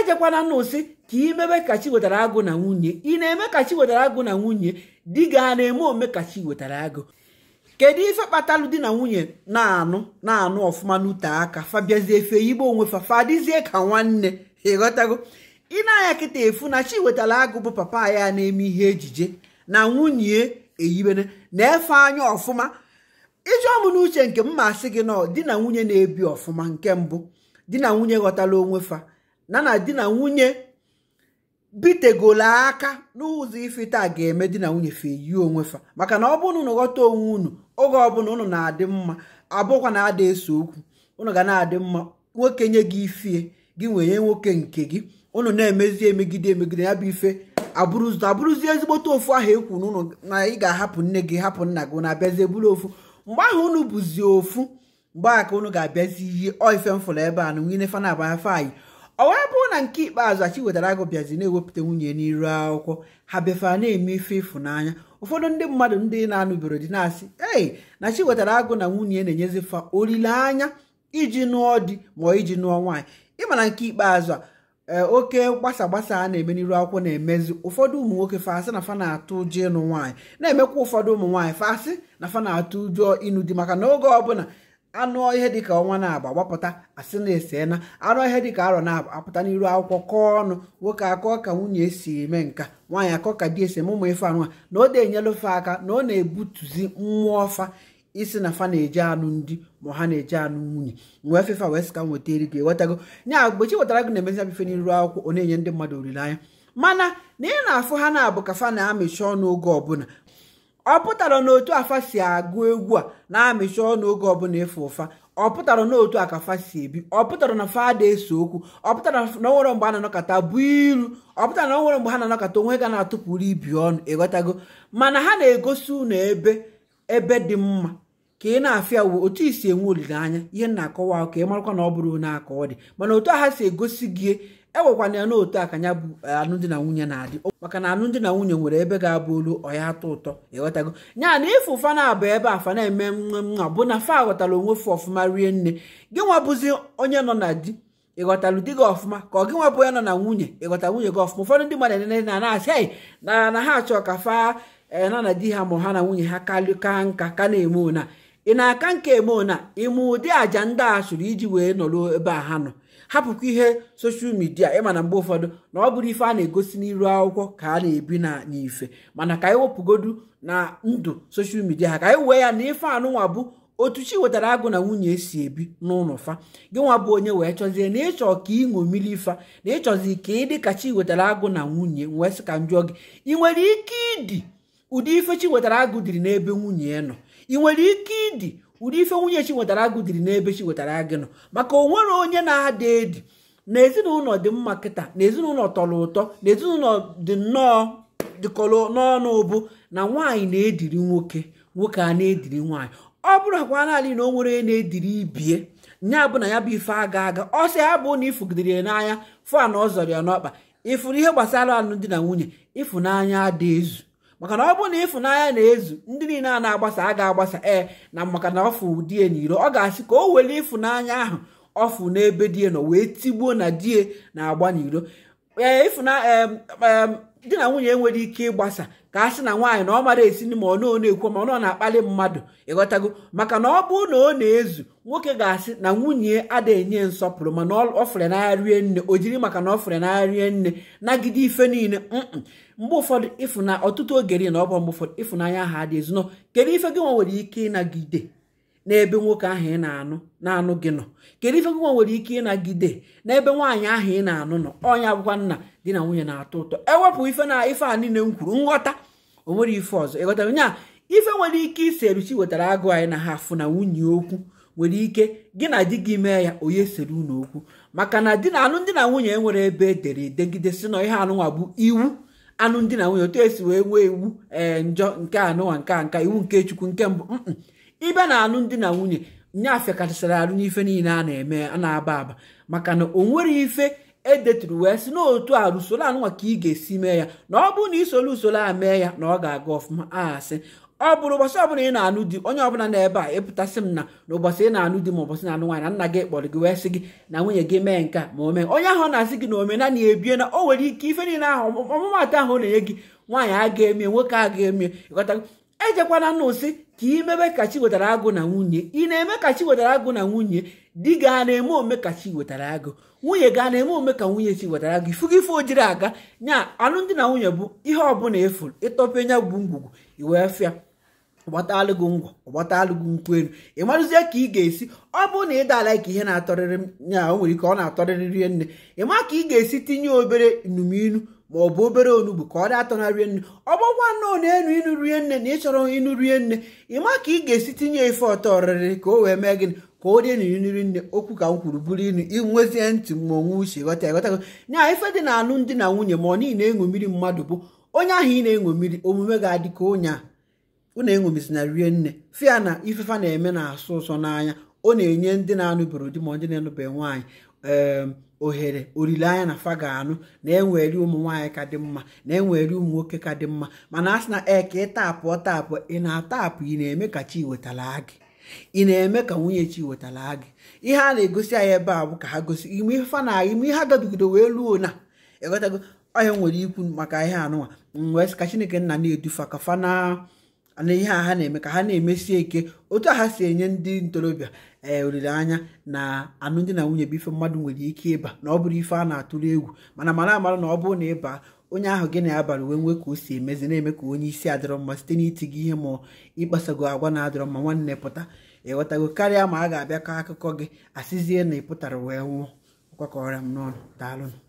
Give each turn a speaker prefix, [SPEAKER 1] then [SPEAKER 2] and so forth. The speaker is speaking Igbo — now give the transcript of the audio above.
[SPEAKER 1] ejekwana n'ụsị ka imebe chi wetara agụ na nwunye ị na-eme chi wetara agụ na nwunye di gị a na-eme ome chi wetara agụ kedu ife kpatalụ di na nwunye na-anụ na-anụ ọfụma n'ute aka fabiazie fe igbo onwe fa fadizie ka nwanne ịghọtago ị na-anya kịta efu na chi wetara agụ bụ papa ya na-eme ihe ejije na nwunye eyibere na-efe anya ọfụma ijụọ m n'uche nke m masị gị na di na nwunye na-ebi ọfụma nke mbụ di na nwunye ghọtala onwe fa na na di na nwunye bitegola aka n'ụzọ taa ga-eme di na nwunye fe onwe fa maka na ọ bụrụ na unu ghọta onwe unu oge ọbụla unu na-adị mma abụkwa na ada eso okwu unu ga na-adị mma nwoke nye gị ifie gị nwere nwoke nke gị unu na-emezi emegide emegide ya bụ ife abụrụzi ezigbote ofu ahụ ekwu n'ụlọ na ị ga-ahapụ nne gị hapụ nna gị na abịazi eburu ofu mgbe ahụ unu bụzi ofu mgbe aka unu ga-abịazi ihe oife mfụrụ ebe a na nwunye fana abaya fayi ọ wee bụrụ na nke ikpeazụ achi wetara agụ bịazi na-ewepụta nwunye n'iru akwụkwọ ha bịafee na-eme ife ịfụnanya ụfọdụ ndị mmadụ ndị na-anụbiro dị na-asị ee na chi wetara agụ na nwunye na-enyezifa olileanya iji nụọ di ma iji nụọ nwaanyị ịmana nke ikpeazụ a eh, oke gbasa gbasa a na-eme n'iru akwụkwọ na-emezi ụfọdụ ụmụ nwoke fasị na fa na-atụ ụjọ ịnụ nwaanyị na-emekwa ụfọdụ ụmụ nwaanyị fasị na fa na-atụ ụjọ ịnụ di maka na oge ọbụla anụ ihe dịka ọnwa na-agba gbapụta asị na esena na anụ ihe dịka arọ na-apụta n'iru akwụkwọ kọọ ọnụ nwoke akọ ka nwunye esi eme nka nwaanyị akọ ka di esi mụmụ ife anụ a na ọ na enyelụ fa aka na ọ na-ebutuzi mmụọ fa isi na fa na-eje anụ ndị ma ha na-eje anụ nwunye wee fefa wee sị ka m weta eri gị ewetago nya mgbe wetara gị na-emezi abife n'iru akwụkwọ ọ na-enye ndị mmadụ olileanya mana na ị na-afụ ha na-abụ ka fa na-amịchi ọnụ oge ọbụla ọ pụtara na otu afa si agụ egwu a na-amịcha ọnụ oge ọbụla ịfụ ụfa ọ pụtara na otu akafa si ebi ọ pụtara na fada ese okwu ọ pụtara na onwere mgbe a na-anọkọta bụ ilu ọ pụtara na onwere mgbe ha na-anọkọta onwe ga na-atụpụrụ ibi ọnụ ịghọtago mana ha na-egosi ụnụ ebe ebe dị mma ka ị na-afịa uwe otu isi enwe olileanya ihe na-akọwa ka ị marakwa na ọ bụrụ na akọ ọ dị mana otu a ha si egosi gị enwekwana ya n'otu aka ya bụ e, alụmdi na nwunye na-adị maka na alụmdi na nwunye nwere ebe ga-abụ olu ọya atọ ụtọ ịghọtago e nya na ịfụ fa na ebe afa na-eme nwa bụ na fa ghọtara onwe fụ ọfụma rie nne gị nwabụzi onye nọ na di ịghọtalụ di gị ọfụma ka ọ gị bụ onye nọ na nwunye ịghọta nwunye gị ọfụma ụfọdụ ndị mmadụ nene na na-asị na na ha achọ ka fa e, na na di ha ma ha na nwunye ha ka nka ka na-eme ona ị na-aka nka emeona ịmụ ụdị àjà ndị a iji wee nọrọ ebe a ha nọ hapụkwa ihe soshal midia ịma na mgbe ụfọdụ na ọ bụrụ ife a na-egosi n'iru akwụkwọ ka a na-ebi na n'ife mana ka anyị wepụgodu na ndụ soshal midia ha ka anyị wee ya na ife anụnwa bụ otu chi wetara agụ na nwunye esi ebi n'ụlọ fa gị nwa bụ onye wee chọzie na ịchọ ka ị mmiri ife na ịchọzi ka ị dịka chi wetara agụ na nwunye wee sị ka m gị ị nwere ike ịdị ụdị ife chi wetara agụ dịrị n'ebe nwunye nọ ị nwere ike ịdị ụdị ife nwunye chi nwetara agụ dịrị n'ebe chi nwetara gị nọ maka o nwere onye na-ada edi na ezinụlọ dị mma kịta na ezinụlọ tọrọ ụtọ na ezinụlọ dị nnọọ dịkọrọ n'ọnụ ụbụ na nwaanyị na-ediri nwoke nwoke a na-ediri nwaanyị ọ bụrụ akwa naanị na o nwere na-ediri ibie nya bụ na ya bụ ife aga aga ọ sị ya bụ na ifugidere ya n'anya fan ọ zọrọ ya n'ọkpa ịfụrụ ihe gbasara alụmdi na nwunye ịfụnanya ada ezu maka na ọ bụrụ na ịfụnanya na-ezu ndị niile a na-agbasa a ga-agbasa ee na maka na ọ fụ die n'iro ọ ga-asị ka o were ịfụnanya ahụ ọ n'ebe die nọ wee tigbuo na die na-agba n'iro ee di na nwunye nwere ike ịgbasa ka a sị na nwaanyị na ọ mara esi ma ọ nọ na-ekwu ma ọ na-akpali mmadụ ịghọtago maka na ọ bụrụ na ọ na-ezu nwoke ga-asị na nwunye ada enye nsọpụrụ mana ọ fere n'agha rie nne o jiri maka na ọ fere n'agha rie nne nagide ife niile mgbe ụfọdụ ịfụna ọtụtụ oge na ọ bụ mgbe ụfọdụ ịfụnanya ha adịghị ezu kedu ife gị nwa nwere ike ịnagide n'ebe nwoke ahụ ị na-anụ na-anụ gị nọ kedu ife ngwa nwere ike ịnagide n'ebe nwaanyị ahụ ị na-anụ nọ ọnya bụkwa nna di na nwunye na-atọ ụtọ ewepụ ife na ife a niile m kwuru nghọta o nwere ife ọzọ ịghọtara nya ife nwere ike isi eruchi wetara agụ anyị na ha afụ na nwunye okwu nwere ike gị na di gị mee ya onye sere unu okwu maka na di na anụ ndị na nwunye enwere ebe edere edegide si na ihe anụnwa bụ iwu anụ ndị na nwunye otu esi wee nwee iwu ee eh, njọ nke anụnwa nke nka iwu nke chukwu nke mbụ ibe na ndị na nwunye nyafe kachasara alụ n'ife niile a na-eme a na-aba aba maka na o nwere ife edeturu wee si n'otu a usoro anụnwa ka ị ga-esi mee ya na ọ bụrụ na isoro usoro a mee ya na ọ ga-aga ọfụma asị ọ bụrụ ụbọchị ọbụla ị na-anụ di onye ọbụla ebe a ịpụtasị m na n'ụbọchị ị na-anụ di ma ụbọchị na-anụ nwaanyị na nna gị kpọrọ gị wee sị gị na nwunye gị mee nke a ma o mee onye ahụ na-asị gị na omenala ebie na o nwere ike ife niile ahụ ọmụmatụ ahụ na-enye gị nwaanyị a ga-emie nwoke a ga-emie ịghọtago ejekwana nnụ ka imebe ka chi wetara agụ na nwunye ị na-eme ka chi wetara agụ na nwunye di gaa na-eme ome ka chi wetara agụ nwunye gaa na-eme ome ka nwunye chi wetara agụ ifu gị ife ojiri aga nya alụmdi na nwunye bụ ihe ọbụla efu ịtọpụ nya gbu ngwugwu iwee fịa ọgbatalụgụ ngwa ọgbatalụgụ nkwụ elu ị marụzie ka ị ga-esi ọ bụ na ị daala ka ihe na-atọrịrị ya o nwere ike ọ na-atọrịrị nne ị ma ka ị ga-esi tinye obere inumilu ma ọ bụ obere onugbu ka ọ atọ na rie nne ọ bụkwa nnọọ na-enu ịnụ rie nne na ịchọrọ ịnụ rie nne ịma ka ị ga-esi tinye ife ọtọ ọrịrị ka o wee mee gịnị ka ọ dị nri nne okwu ka m kwuru bụrụ inu inwezie ntị ma onwe uche ghọta ghọtago na ife dị na anụ dị na nwunye ma ọ niile na-eṅụ mmiri mmadụ bụ onye ahụ ị na-eṅụ mmiri omume ga-adị ka onye a rie nne fia na ifefa na-eme na-asụ ụsọ n'anya ọ na-enye ndị na-anụbeghị di ma ndị na nwaanyị ehm, ohere olileanya na fa ga-anụ na enweri ụmụ nwaanyị ka dị mma na enweri ụmụ nwoke ka dị mma mana a sị na ee ka ị tapụọ tapụ ị na-atapụ ị na-eme ka chi wetara gị ị na-eme ka nwunye chi wetara gị ihe a na-egosi anyị ebe a bụ ka ha gosi ime ife fa na ime ihe agabigido wee luo na ịghọtago e onye nwere ikwu maka ihe anụnwa wee sị ka chineke nna na-edufa ka fa na na ihe a ha na-eme ka ha na emesi ike otu a ha si enye ndị ntorobịa ee olileanya na alụmdi na nwunye bụ ife mmadụ nwere ike ịba na ọ bụrụ ife a na-atụrụ egwu mana mara amara na ọ bụrụ na ịba onye ahụ gị na abara uwe nwe ka o si emezi na-eme ka onye isi adịrọ mma site n'iti gị ihe ma ịkpasago agwa na-adịrọ mma nwanne pụta ịghọtago karịa ma a ga-abịa ka akụkọ gị asịzie na ị pụtara wee nwụọ ọkwakọrọ m n'ọnụ daalụnụ